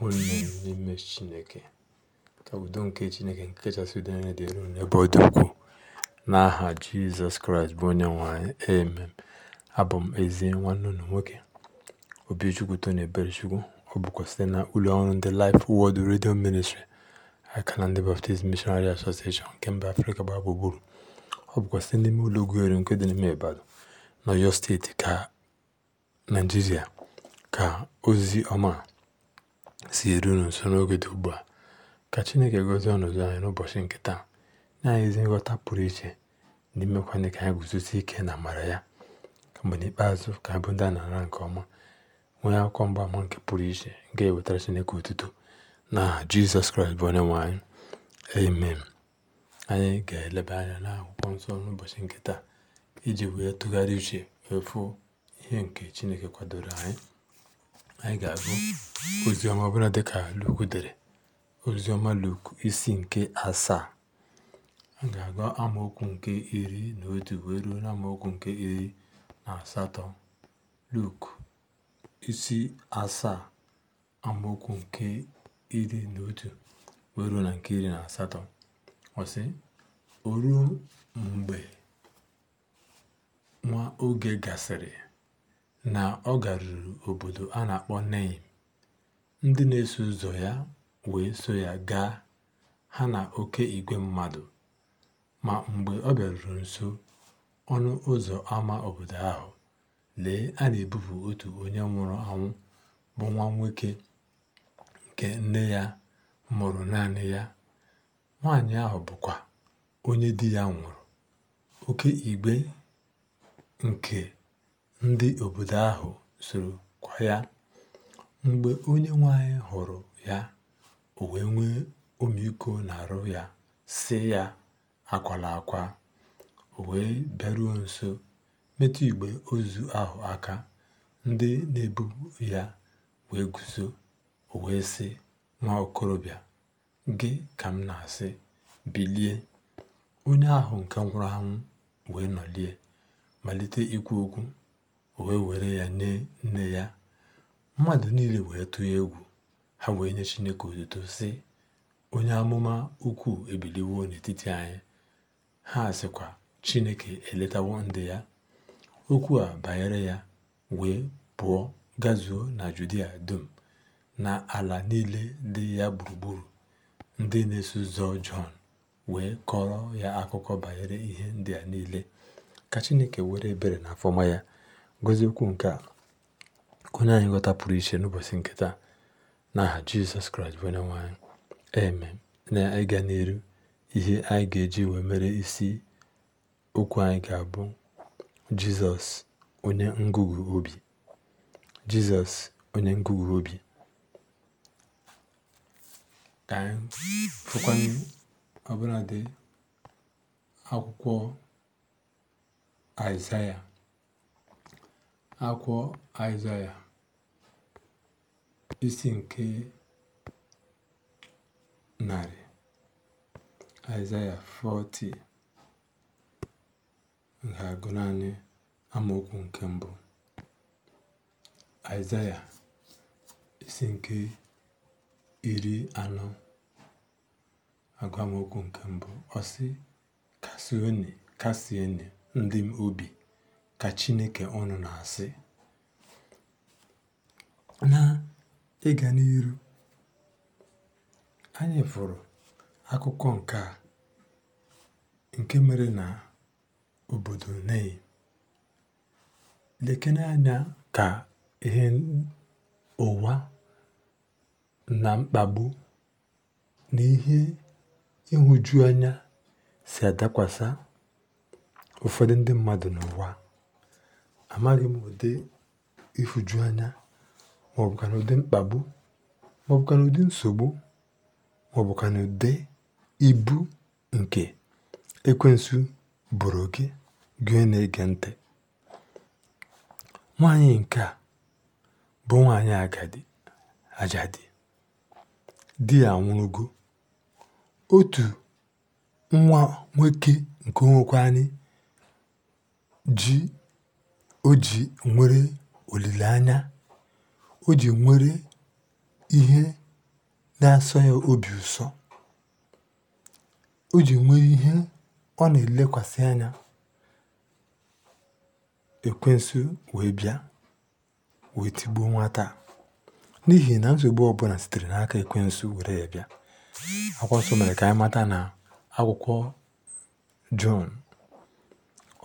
nwere unu n'ime Chineke. Ka udo nke Chineke nke kachasị udo niile dịrị ọdụ ebe ọ dị ukwuu n'aha Jizọs Kraịst bụ onye nwanyị anyị. Amen. Abụ m ezi nwanne unu nwoke obi Obichukwu ebere chukwu Ọ bụkwa site na ụlọ ọrụ ndị Life wọd redio Ministry aka na ndị Baptist mishonari Association nke mba Afrịka gbaa gburugburu. Ọ bụkwa site n'ime ụlọ ogwuere nke dị n'ime Ibadan n'Ọyọ steeti ka Naijiria ka ozi ọma si eru nso n'oge dị ugbu a ka chineke ọnụ ọnọdụ anyị n'ụbọchị nke taa nye anyị ezi nghọta pụrụ iche na imekwana ka anyị guzosi ike na amara ya mgbe n'ikpeazụ ka anyị bụ ndị a na-ara nke ọma nwee akwụkwọ mgbaama nke pụrụ iche nke ewetara chineke otuto na jizọs kraịst bụ onye nwanyị anyị amen anyị ga-eleba anya akwụkwọ nsọ n'ụbọchị nke taa iji wee tụgharị uche efu ihe nke chineke kwadoro anyị Anyị ga-agụ oziọma ọbụla dịka luku dere oziọma luku isi nke asaa a ga-agụ amaokwu nke iri na otu wee ruo na amaokwu nke iri na asatọ luku isi asaa amaokwu nke iri na otu wee ruo na nke iri na asatọ ọsị o mgbe nwa oge gasịrị na ọ garuru obodo a na-akpọ Neim. Ndị na-eso ụzọ ya wee so ya gaa, ha na oke igwe mmadụ. Ma mgbe ọ bịaruru nso ọnụ ụzọ ama obodo ahụ, lee, a na-ebupụ otu onye nwụrụ anwụ bụ nwa nwoke nke nne ya mụrụ naanị ya. Nwaanyị ahụ bụkwa onye di ya nwụrụ. oke igwe nke ndị obodo ahụ soro kwa ya. Mgbe onye nwanyị hụrụ ya, o wee nwee na-arụ ya, si ya, “Akwala akwa.” O wee bịaruo nso, metụ igbe ozu ahụ aka. Ndị na-ebu ya wee guzo, o wee sị, “Nwa okorobịa, gị ka m na-asị, bilie!” Onye ahụ nke nwụrụ anwụ wee nọlie, malite ikwu okwu. o wee were ya nye nne ya mmadụ niile wee tụọ egwu ha wee nye chineke otuto si onye amụma ukwu ebiliwo n'etiti anyị ha sịkwa chineke eletawo ndị ya okwu a banyere ya wee pụọ gazuo na judia dum na ala niile dị ya gburugburu ndị na-eso ụzọ jọn wee kọrọ ya akụkọ banyere ihe ndị a niile ka chineke were ebere na afọma ya gọziekwu nke a onye anyị ghọta pụrụ iche n'ụbọchị nkịta taa n'aha jizọs kraịst bụ onye nwanyị e eme na ịga n'eru ihe anyị ga-eji wee mere isi okwu anyị ga-abụ jizọs onye ngụgụ obi jizọs onye ngụgụ obi ka anyị fụkwanye ọbụladị akwụkwọ aịzaya akwọ Aịzaya isi nke narị Aịzaya 40 ga-agụ naanị amaokwu nke mbụ Aịzaya isi nke iri anọ agụ amaokwu nke mbụ ọsị sị kasienụ ndị m obi ka Chineke unu na-asị na ịga n'iru anyị fụrụ akụkọ nke a nke mere na obodo Nei lekene anya ka ihe ụwa na mkpagbu na ihe ịhụju anya si adakwasa ụfọdụ ndị mmadụ n'ụwa amaghị m ụdị ịhụju anya na ụdị mkpagbu na ụdị nsogbu na ụdị ibu nke ekwensu bụrụ gị gị na-ege ntị nwaanyị nke a bụ nwaanyị agadi ajadi di ya anwụrụgo otu nwa nwoke nke anyị ji o ji nwere olileanya, o ji nwere ihe na-asọ ya obi ụsọ, o ji nwere ihe ọ na-elekwasị anya. Ekwensu wee bịa wee tigbuo nwata taa n'ihi na nsogbu ọbụla sitere n'aka ekwensu were ya bịa. Akwụkwọ nsọ mere ka anyị na akwụkwọ Jọn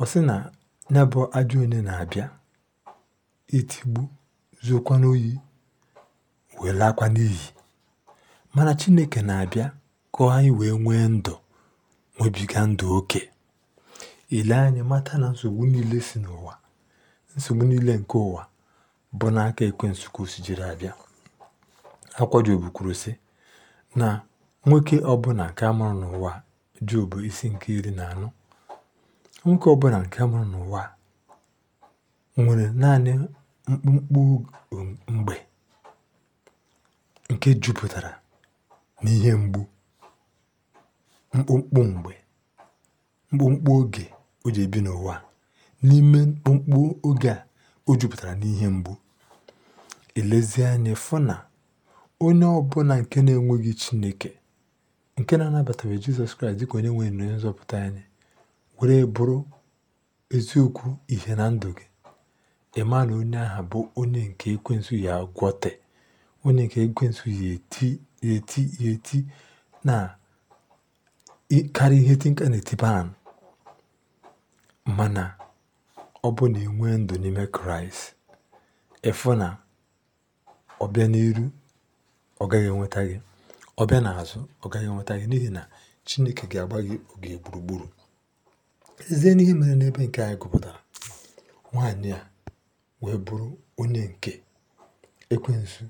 ọ sị na ya bụ ajọ onye na-abịa itigbu zuokwa n'oyi wee laakwa n'iyi mana chineke na-abịa ka anyị wee nwee ndụ nwebiga ndụ oke ile anya mata na nsogbu niile si n'ụwa nsogbu niile nke ụwa bụ n'aka ekwe ka si jiri abịa akwa jobu kwuru sị na nwoke ọbụla nke a mụrụ n'ụwa jobu isi nke iri na anọ Nwoke ọbụla nke mụrụ n'ụwa nwere naanị mkpụmkpụ mgbe nke jupụtara n'ihe mgbu, mkpụmkpụ mgbe, mkpụmkpụ oge o ji ebi n'ụwa N'ime mkpụmkpụ oge a o jupụtara n'ihe mgbu, elezie anya fụ na onye ọbụla nke na-enweghị Chineke, nke na anabata Jizọs Kraịst dịka onye nwe na nzọpụta anyị were bụrụ eziokwu ihe na ndụ gị ịma na onye ahụ bụ onye nke ekwensu ya gwọte onye nke ekwensu ya eti ya eti eti na karịa ihe tinka na-etiba anụ mana ọ bụ na enwe ndụ n'ime kraịst efu na ọbịa n'iru ọ gaghị enweta gị ọbịa n'azụ ọ gaghị enweta gị n'ihi na chineke ga-agba gị oge gburugburu lezie n'ihe mere n'ebe nke anyị gụpụtara nwaanyị a wee bụrụ onye nke ekwensu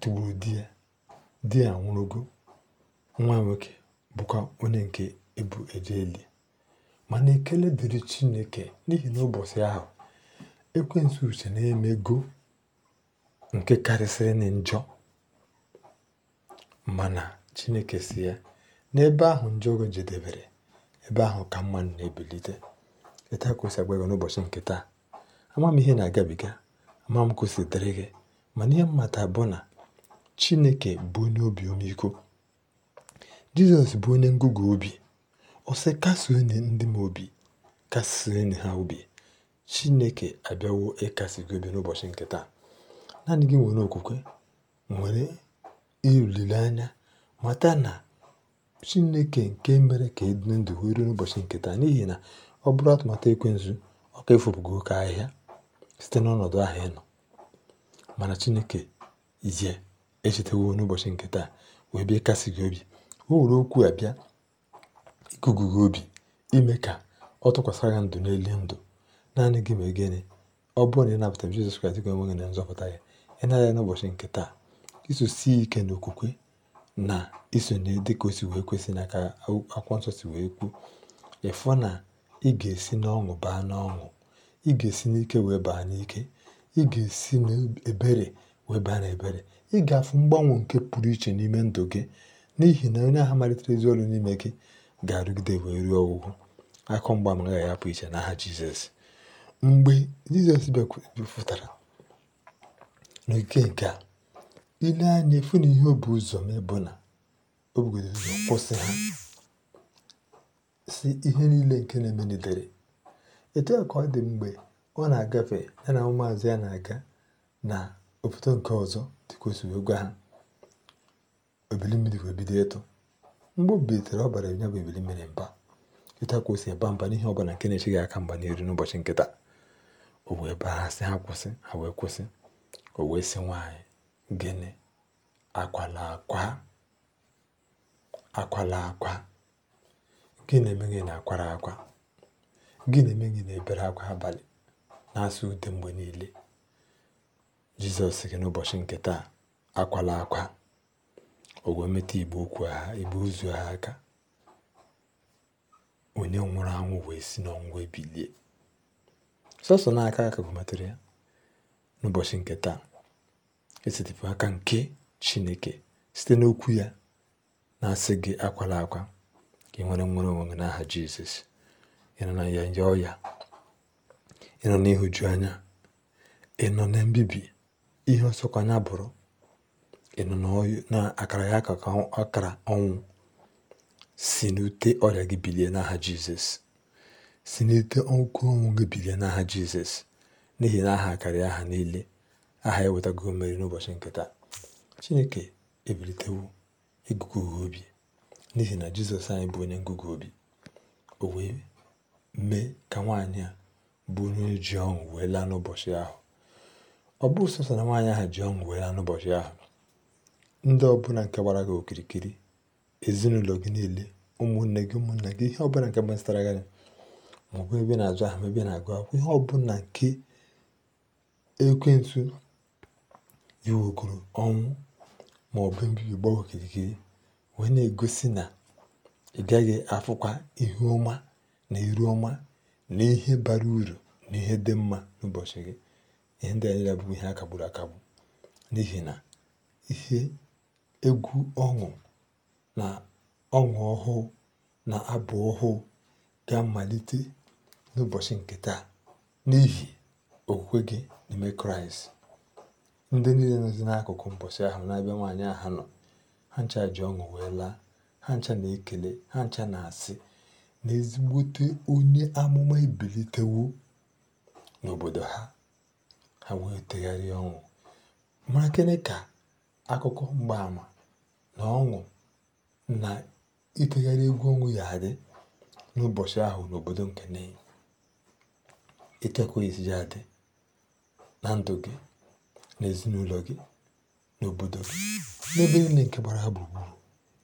tụgburu di ya di ya nwụrụgo nwa nwoke bụkwa onye nke ebu eje eli mana ekele dịrị chineke n'ihi na ụbọchị ahụ ekwensu uche na-emego nke karịsịrị na njọ mana chineke si ya n'ebe ahụ njọ go jedebere ebe ahụ ka mma na-ebilite etu ka o n'ụbọchị nke taa ama m ihe na-agabiga ama m kwụsị dịrị gị mana ihe mmata bụ na chineke bụ onye obi ọmịiko jizọs bụ onye ngụgụ obi ọsị sị ndị m obi kasuo ha obi chineke abịawo ịkasi gị obi n'ụbọchị nke taa naanị gị nwere okwukwe nwere olileanya mata na Chineke nke mere ka e ndụ wee ruo n'ụbọchị nke taa n'ihi na ọ bụrụ atụmatụ nzụ ọ ka efupugo oke ahịhịa site n'ọnọdụ ahịa nọ mana Chineke ije echetawo n'ụbọchị nke taa wee bịa kasị gị obi o were okwu a bịa gị obi ime ka ọ tụkwasịra ndụ n'elu ndụ naanị gị ma e gịnị ọ bụrụ na ị napụta Jizọs Kraịst na nzọpụta ya ị naghị n'ụbọchị nke taa isosi ike n'okwukwe na isonye dịkà o sì wee kwesị nà kà akwụkwọ nsọ si wee kwu ị̀fụ nà ị ga-esi n'ọṅụ baa n'ọṅụ. ị ga-esi n'ike wee baa n'ike ị ga-esi n'ebere wee baa n'ebere ị ga-afụ mgbanwe nke pụrụ iche n'ime ndụ gị n'ihi na onye ahụ malitere ezi ọrụ n'ime gị ga-arụgide wee ruo ọgwụgwọ. akụ mgba ama agaghị apụ iche n'aha Jizọs mgbe Jizọs bịakwutara n'oge nke a ile nee anyā ị̀ fụ ihe o bù ụzọ̀ mee bụ̀ nà kwụsị ha si ihe niile nke na n'edere etu a kà ọ dị mgbe ọ na-agafe ya nà ụmụ̀àzụ̀ ya na-aga na òbòdo nke ọzọ dịkà wee gwa hā èbìli mmīrī wee bido ịtụ̄ m̀gbe o bìlìtèrè ọ bàrà ya bụ ebili mīrī mba etu à kà o sì èba m̀ba n'ihe ọbụnà na-echighị aka mba n'èru n'ụbọchị nkịta taà o wee baa ha si ha kwụsị ha wee kwụsị o wee sị gịnị? Akwala akwa. Akwala akwa. Gịnị na-eme gị na-akwara akwa? Gịnị na-eme gị na-ebere akwa abalị na-asụ ude mgbe niile? Jizọs gị n'ụbọchị nke taa, akwala akwa. O igbe okwu ha igbe ozu ha aka. Onye nwụrụ anwụ wee si n'ọnwụ ebilie bilie. Sọsọ n'aka ka o ya n'ụbọchị nke taa. esetipụ aka nke chineke site n'okwu ya na-asị gị akwala akwa ka ị nwere nwere onwe gị n'aha jizọs ịnọ na ya ya ọya ịnọ n'ihụju anya ịnọ na mbibi ihe ọsọkwa ọsọkwanya bụrụ ịnọ na akara ya akara ọnwụ si n'ute ọrịa gị bilie n'aha jizọs si n'ute ọkụ ọnwụ gị bilie n'aha jizọs n'ihi na aha karịa aha niile aha eweta ewetago mmeri n'ụbọchị nke taa chineke ebilitewo ịgụgụ obi n'ihi na jizọs anyị bụ onye ngụgụ obi o wee mee ka nwaanyị a bụ onye ji ọṅụ wee laa n'ụbọchị ahụ ọ bụ sọsọ na nwaanyị ahụ ji ọṅụ wee laa n'ụbọchị ahụ ndị ọbụla nke gbara gị okirikiri ezinụlọ gị niile ụmụnne gị ụmụnne gị ihe ọbụla nke gbasara gị maọbụ ebe na-azụ ahụ ebe na-agụ akwụkwọ ihe ọbụla nke ekwensu iwègòrò ọnwụ bụ mbibi gbawa okirikiri wee na-egosi na ị gaghị afụkwa ihu ọma na iru ọma na ihe bara uru na ihe dị mma n'ụbọchị gị ihe ndị a bụ ihe akagburu kagburu akagbu n'ihi na ihe egwu ọṅụ na ọṅụ ọhụụ na abụ ọhụụ ga-amalite n'ụbọchị nke taa n'ihi okwukwe gị n'ime kraịst Ndị niile nọzi n'akụkụ mbọsị ahụ n'ebe nwaanyị ahụ nọ, ha ncha ji ọṅụ wee laa, ha ncha na-ekele, ha ncha na-asị na ezigbote onye amụma ebilitewo n'obodo ha, ha wee tegharịa ọṅụ. Mara gịnị ka akụkọ mgbaama na ọṅụ na itegharị egwu ọṅụ ya adị n'ụbọchị ahụ n'obodo nke Nnewi? Etu adị na ndụ gị n'ezinụlọ gị n'obodo gị n'ebe niile nke gbara ha gburugburu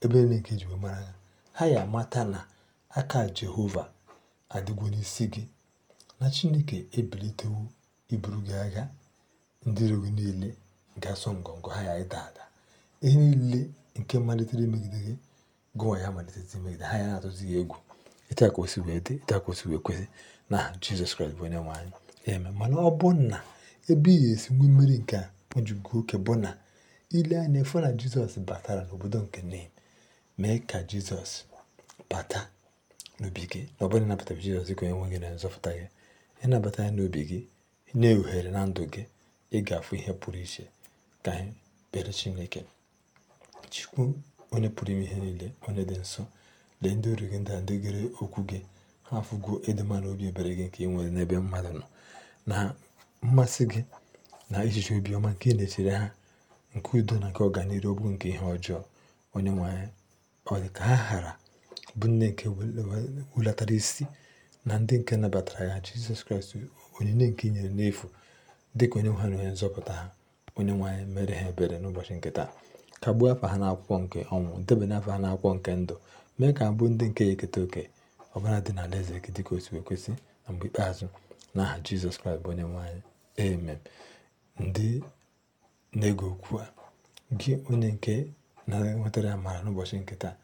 ebe niile nke ji mara ha ha ya amata na aka jehova adịgwo n'isi gị na chineke ebilitewo iburu gị agha ndị iro niile ga-asọ ngọngọ ha ya ịda ada ihe niile nke malitere imegide gị gụnwa ya malitere imegide ha ya na-atụzi ya egwu ịta wee dị ịta wee kwesị na jizọs kraịst bụ onye nwe anyị eme mana ọ bụ na ebe i ga-esigbu mmiri nke a o jigo oke bụ na ile anya ịfụ na jizọs batara n'obodo nke nen mee ka jizọs bata n'obi gị na ọ bụrụ ịnabata jizọs dịka onye nwe gị na nzọpụta gị ịnabata ya n'obi gị nye ohere na ndụ gị ị ga-afụ ihe pụrụ iche ka anyị bere chineke chikwu onye pụrụ ime ihe niile onye dị nsọ lee ndị oru gị ndị a ndị gere okwu gị ha afụgo ịdị mma na obi ebere gị nke ị nwere n'ebe mmadụ nọ na mmasị gị na echiche obiọma nke ị e na-echere ha nke udo na nke ọganihu ọ nke ihe ọjọọ onye nwe ọ dị ka ha ghara bụ nne nke wulatara isi na ndị nke nabatara ya jizọs kraịst onyinye nke nyere n'efu dị ka onye nwe ha na onye nzọpụta ha onye nwe mere ha ebere n'ụbọchị nke taa kagbuo afọ ha n'akwụkwọ nke ọnwụ debanye afa ha n'akwụkwọ nke ndụ mee ka abụ ndị nke ya eketa oke ọbara dị na alaeze gị dịka o si na mgbe ikpeazụ n'aha aha jizọs kraịst bụ onye nwe Amen. Ndị na ego okwu a, gị onye nke na-enwetara amara n'ụbọchị nketa taa,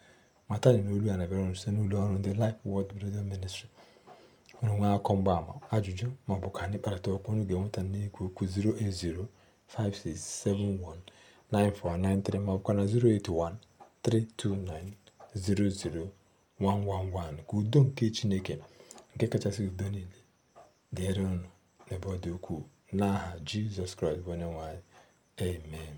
mata na olu a na-abịara unu site n'ụlọ ọrụ ndị Life Word Radio Ministry. Unu nwee akọ mgbaama, ajụjụ ma ọ bụ ka anyị kparịta okwu unu ga-enweta n'ikwu okwu 08056719493 ma ọ na 08132900111 ka udo nke Chineke nke kachasị udo niile dịrị ọnụ n'ebe ọ dị ukwuu. N'aha Jizọs Kraịst bụ Onyenwe anyị. Amen.